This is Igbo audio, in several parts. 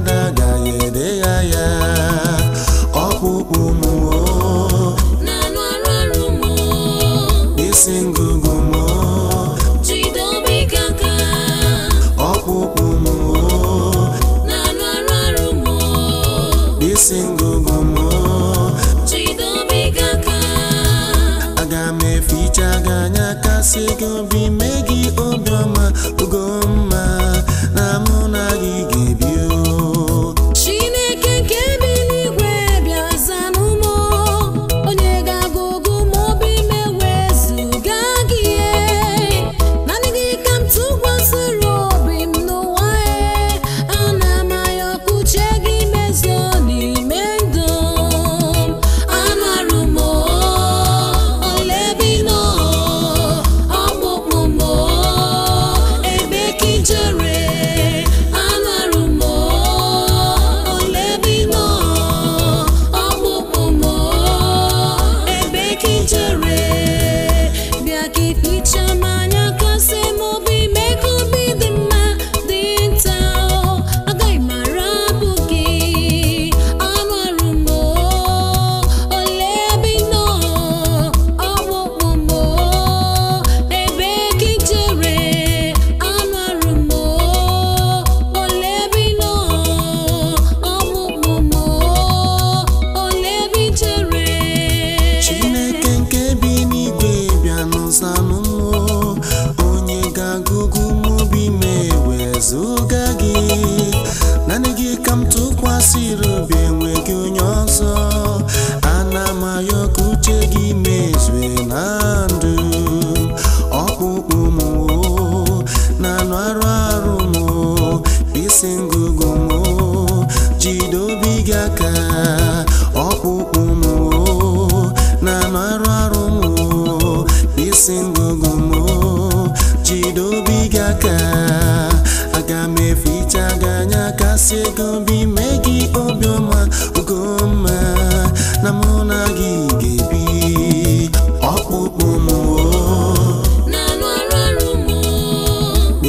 na gaye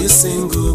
singing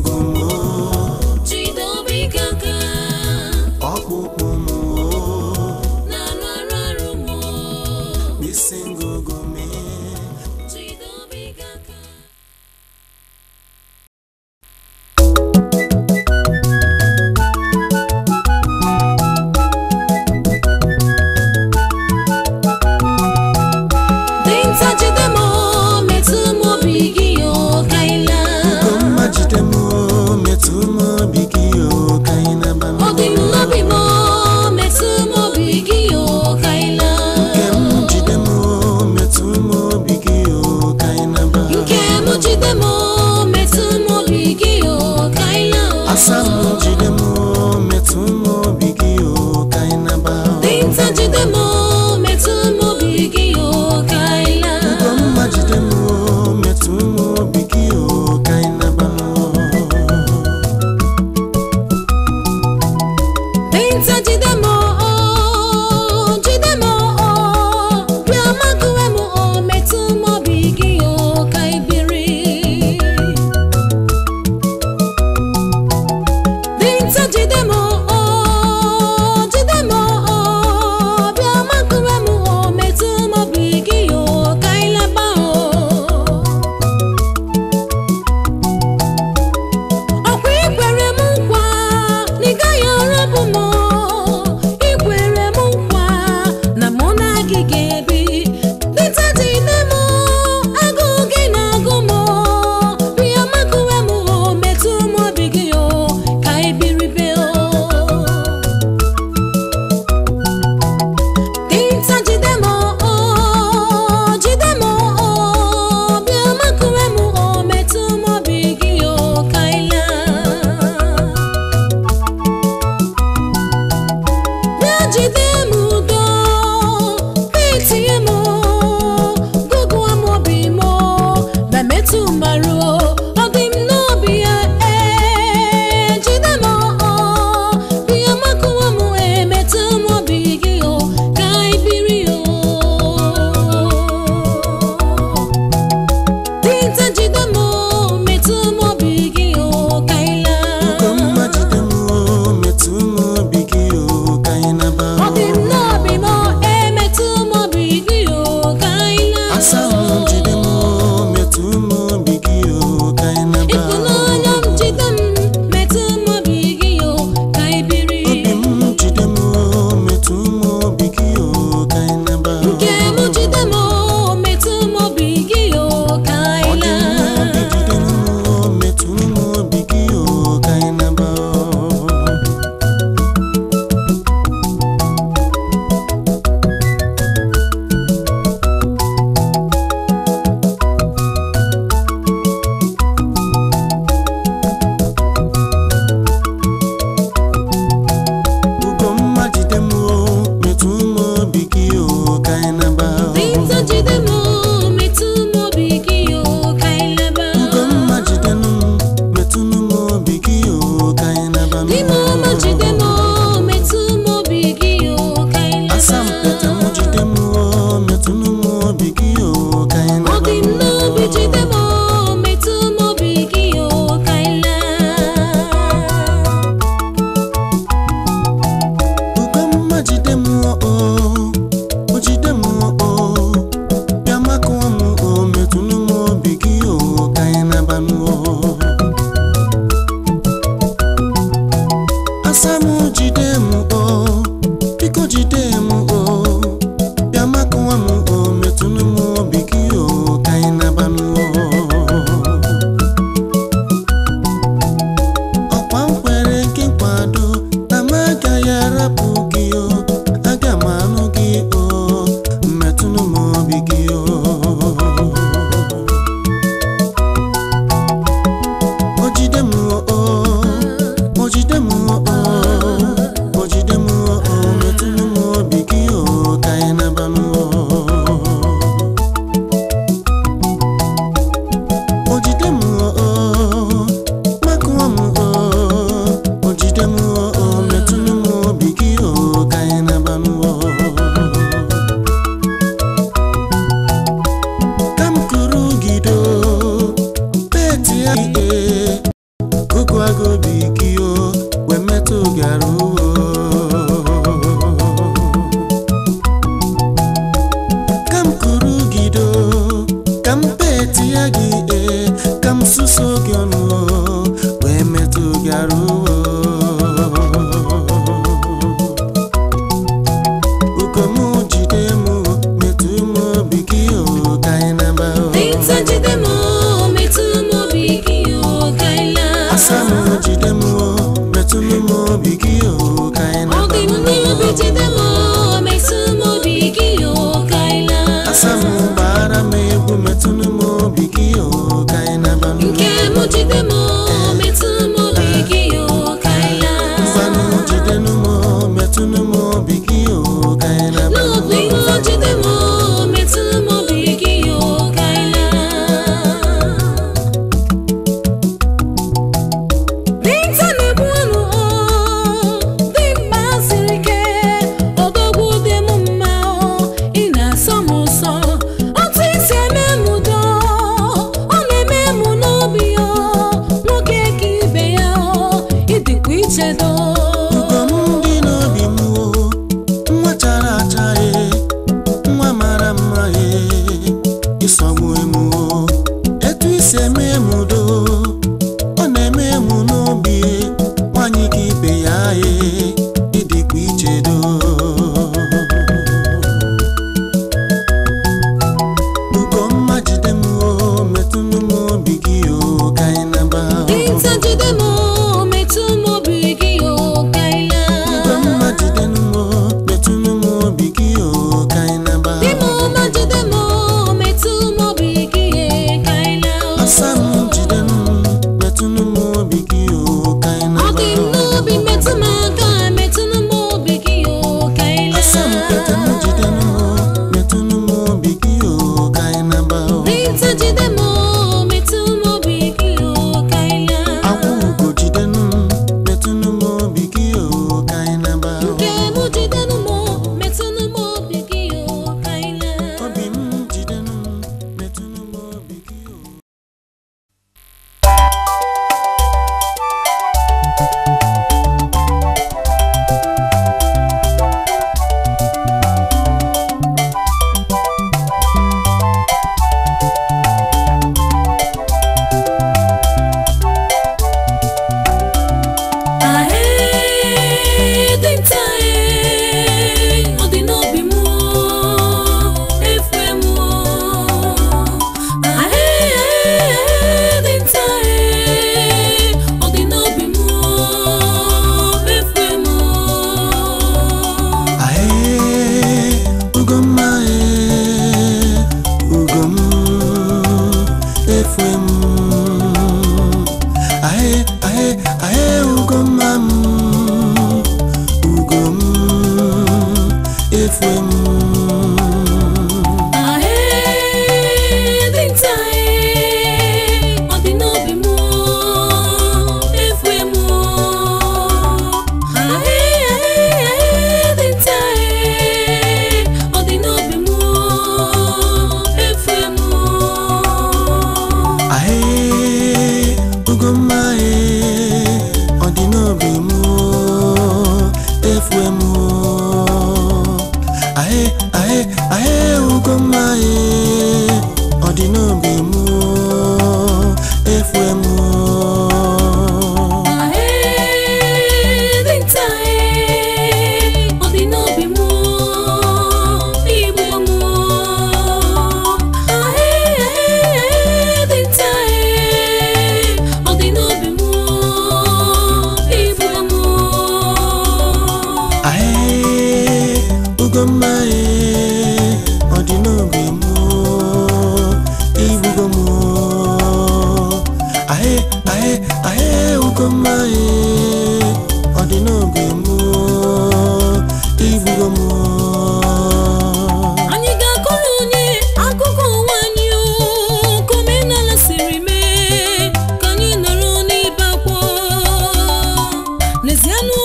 Parmesiano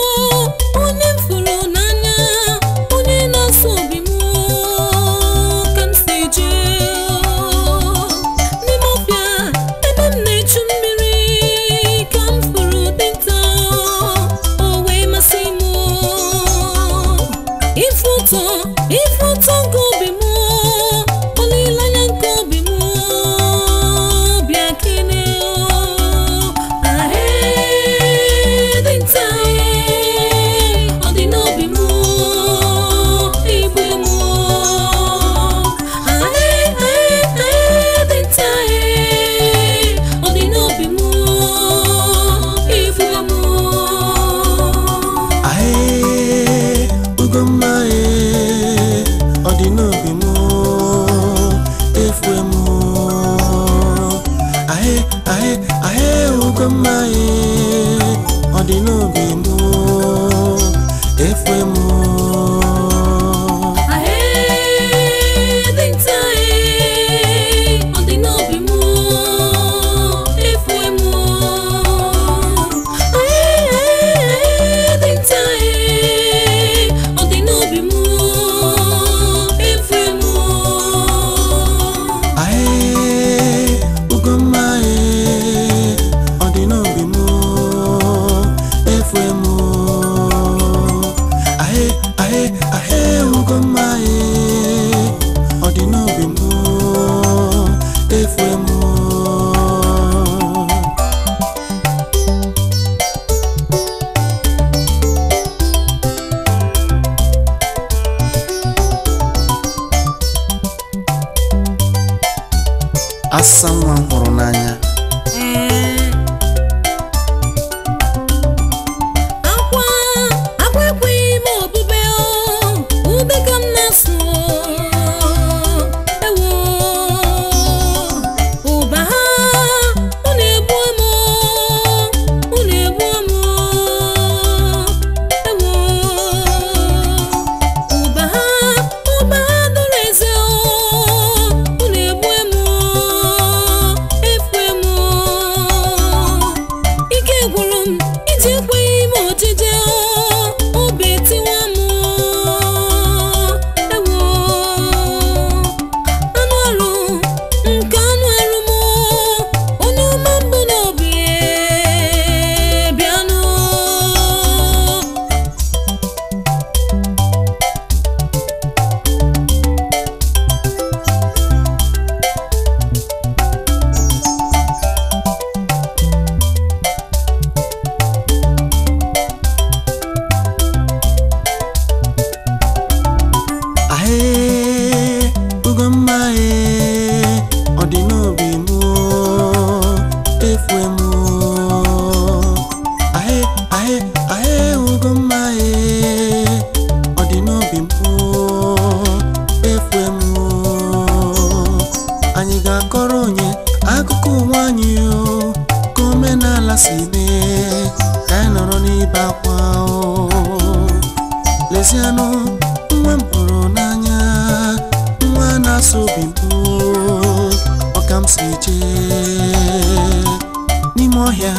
n'ime ọhịa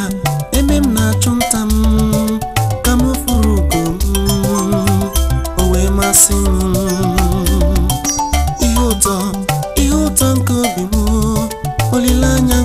ebe m na-achụ nta m ka m furu ugo m o wee masị m ihe ụtọ ihe ụtọ nke obi m olileanya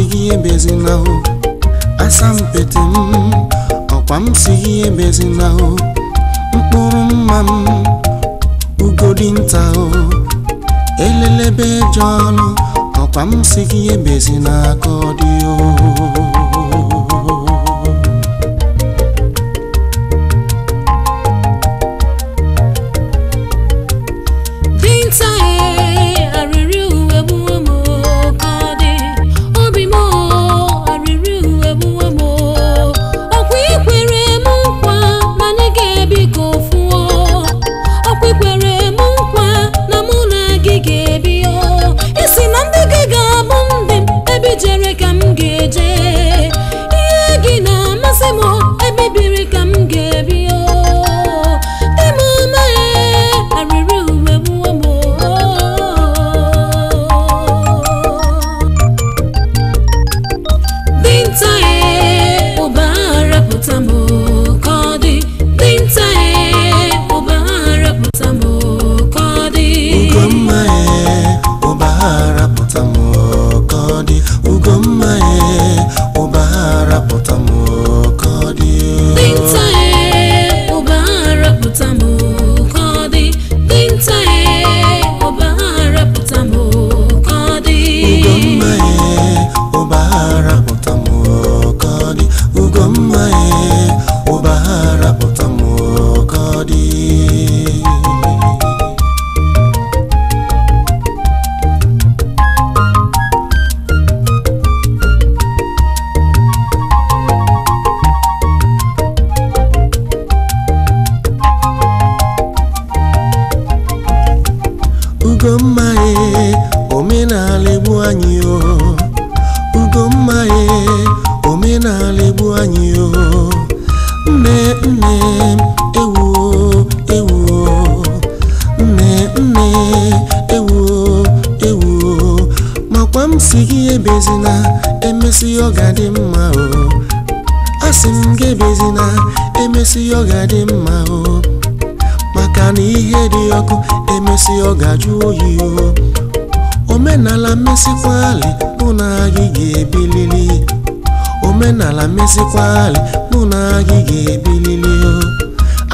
sighị ebezinahụ asampete m ọkwa m sighị ebezinahụ mkpụrụ mma m ugodi nta o elelebe eje ọnụ ọkwa m sighị ebezi n'aka ọ dị o omenala mesikwali mụ na gị ga-ebilili omenala mesikwali mụ na gị ga-ebilili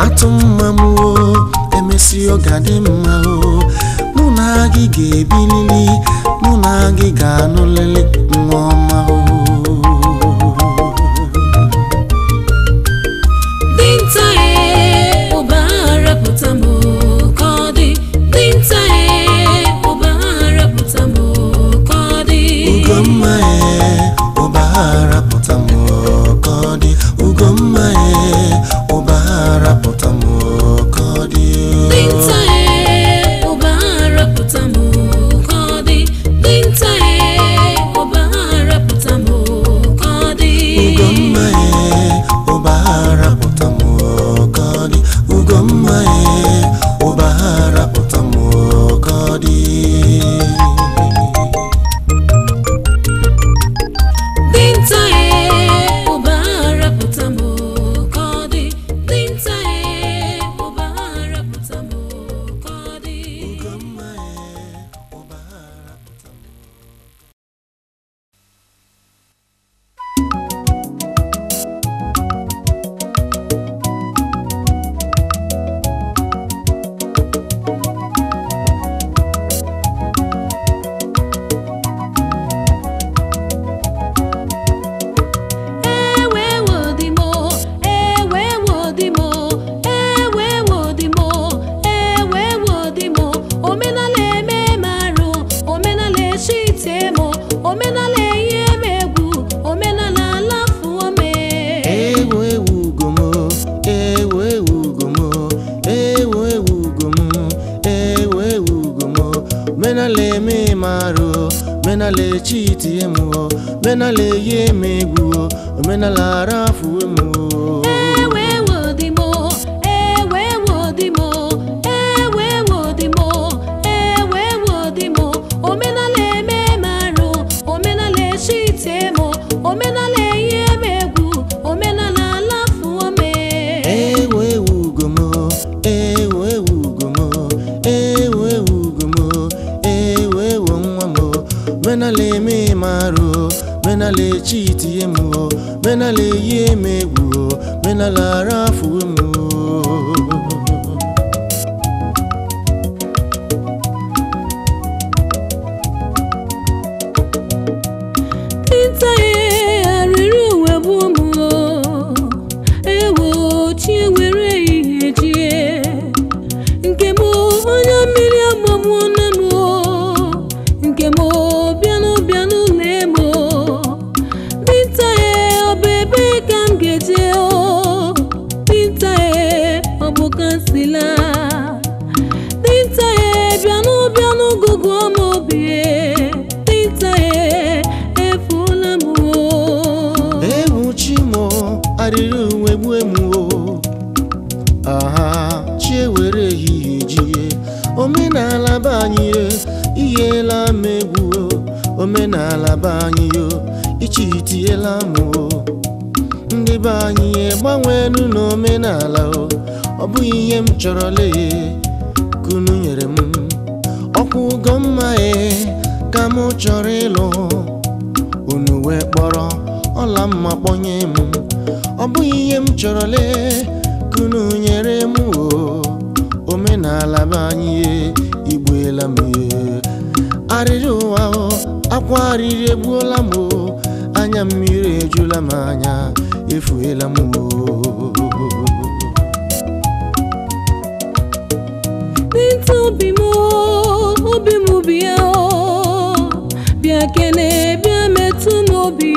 atụ mma m o emesi ọ mma o mụ na gị ga-ebilili mụ na gị ga-anụlili nwa ọma menala eme marụ menala echiti emu menala eyi eme egwu menala ara afụ m ndị be anyị gbanweelu n'omenala ọ bụghị ihe m chọrọ lee kunu nyere m ọkwa ugo mma e ka m chọrọ ịlụ unu wee kpọrọ ọla mma kpọnye m ọ bụghị ihe m chọrọ lee kunu nyere m o omenala be anyị e. igbuela m e. arịrị ụwa akwa arịrị egbuola m o anya mmiri ejula m anya efuela m n'ịtụ obi m obi m bịa kene bịa metụ n'obi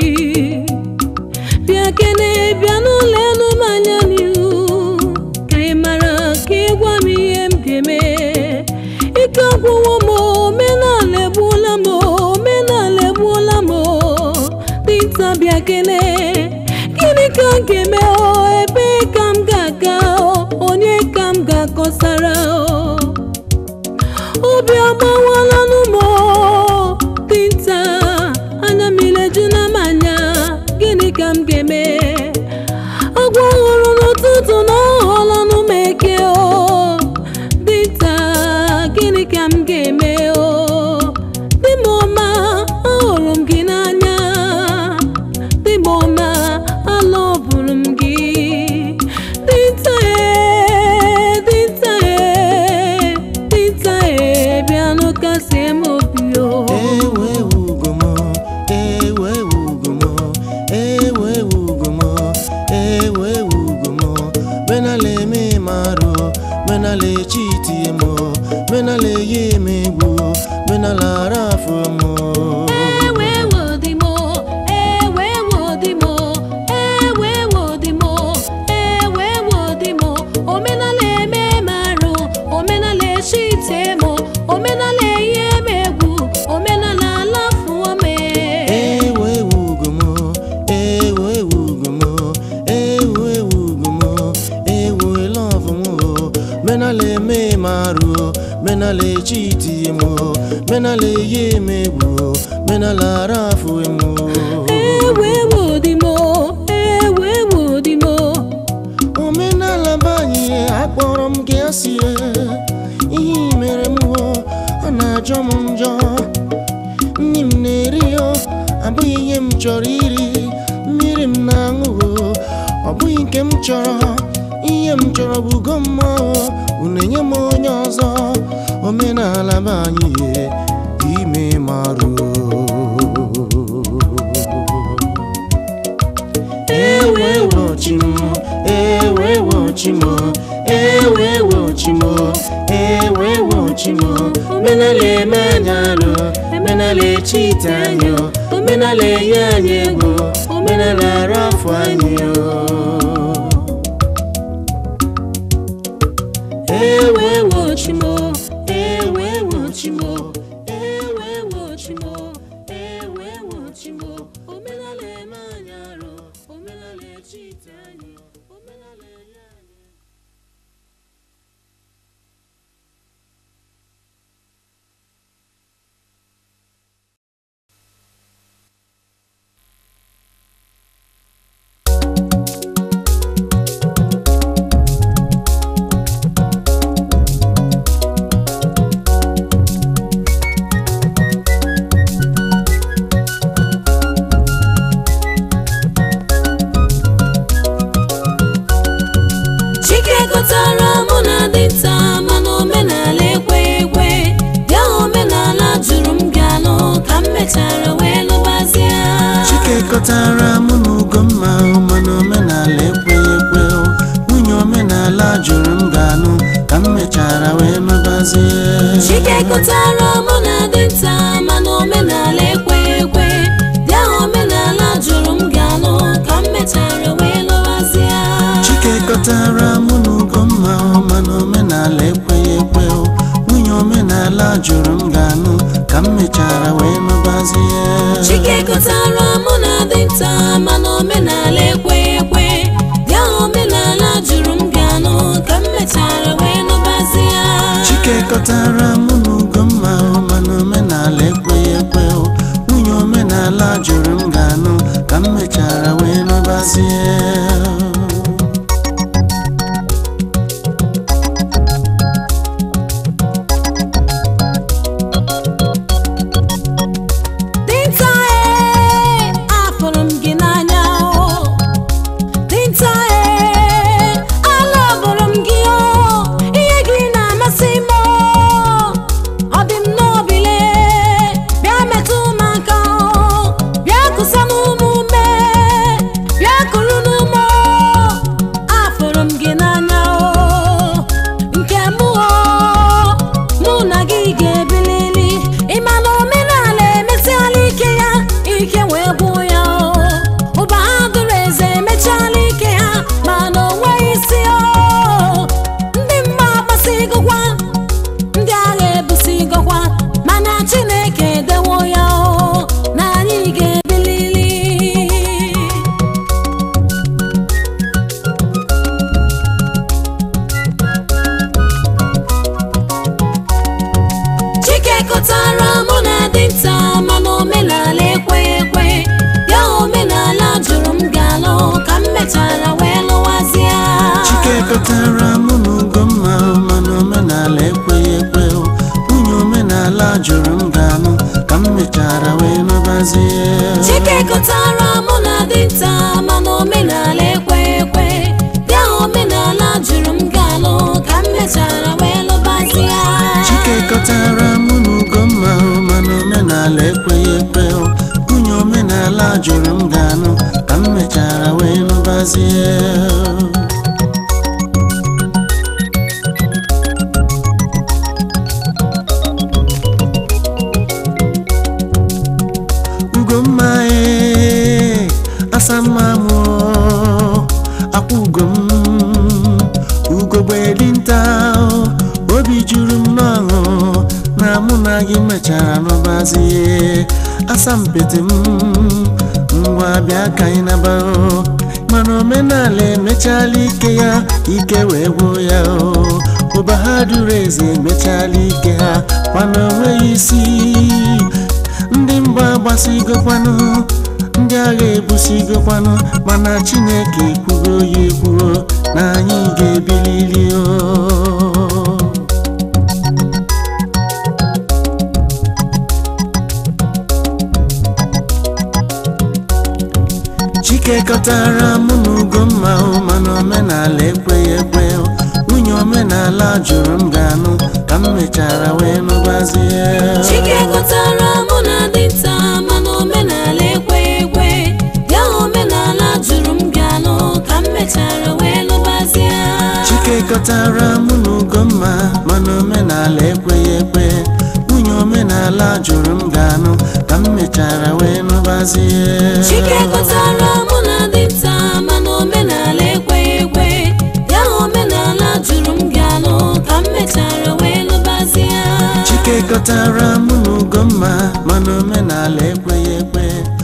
m ga-esi e, ihe mere m ọ na-ajọ m njọ nri m na-eri abụghị ihe m chọrọ iri mmiri m na-aṅụ ọ bụghị nke m chọrọ ihe m chọrọ bụ ugo mmụọ unu m onye ọzọ omenala e, m anyị ime marụ ewewochi ewewo chimo ewewo chimo omenala eme anyị alụ omenala echite anyị omenala enye anyị ego omenala ara afọ anyị ewewo chimo majara wemabazi e chike kọtara mụ na dinta mana omenala ekwe ekwe bịa omenala jụrụ m galụ ka m mechara wee lụbazi ya chike kọtara mụ na ugo mma ugomma mana omenala ekweghị ekwe onye omenala jụrụ m ganụ ka m mechara wee lụbazie asọmpịtị m ngwa bịa ka anyị na-agbanụ nabao mana omenala emechala ike ya ike wee gwuo ya ụba ha duru eze emechala ike ha mana onweghị isi ndị mgba gbasigokwanụ ndị agha ebusigokwanụ mana chineke ekwugo ya ekwuo na anyị ga-ebilili o chikekọtara mụ na Ugomma mana omenala omenala na mana omenala ekweghị ekwe ya omenala jụrụ m wee mụ na Ugomma mana omenala ekweghị omenala jụrụ m ga-anụ ka m mechara wee nụbazie dị nta mana omenala ekweghị ekwe ya omenala jụrụ m gị anọ ka m mechara wee Chike chikekọtara mụ na ugomma mana omenala ekweghị ekwe